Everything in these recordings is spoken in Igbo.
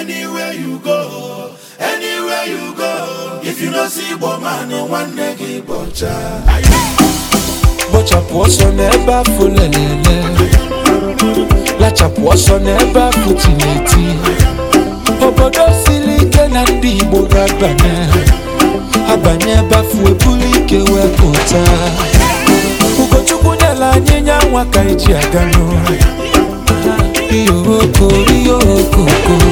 anywhere you go anywhere you go if you no see igbo man nwanne gị bọcha bọchapụ ọsọ n'ebe afụ lelele lachapụ ọsọ n'ebe afụ tineti obodo siri ike na ndị igbo ga-abanye abanye ebe afụ ebulu ike wee pụta ugochukwu nyela anyị nya nwa ka eji aga n'ụlọ ihe okoko ihe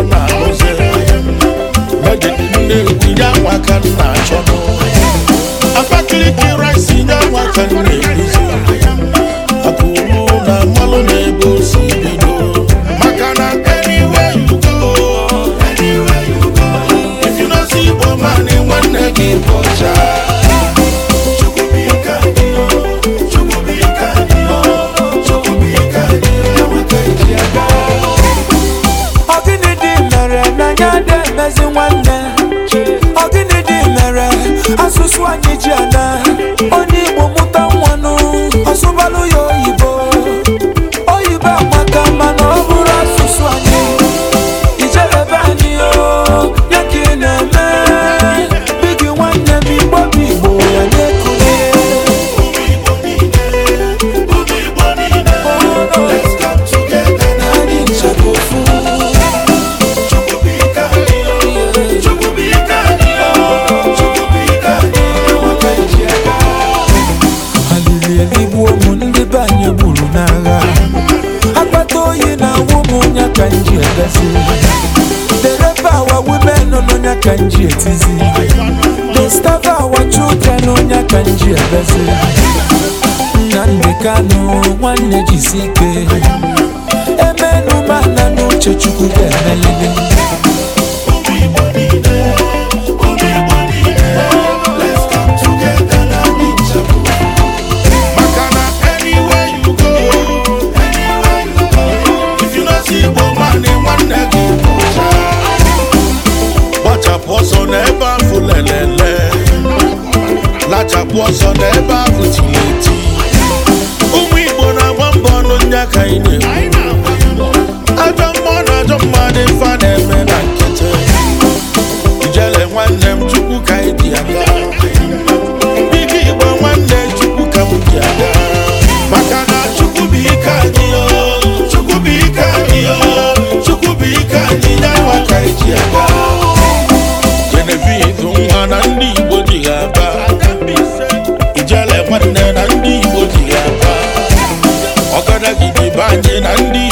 ọ na-arụzi n'oge nne tinye anwa ka m na-achọ Abakaliki nwanne ọ gịnị dị mere asụsụ anyị ji ana kanji egazi dereba our women onye kanji etizi the staff our children onye kanji egazi nnamdị kanụ nwanne jisi ike emenụ mana n'uche chukwu ga na ọsọ n'ebe ahụ tiri eti ụmụ Igbo na-agba mbọ ọnụ ndị aka anyị na ajọ mma na ajọ mmadụ fa na-eme na nkete ijele nwanne m chukwu ka anyị dị aka. ike nwanne ka m dị maka na aga na ndị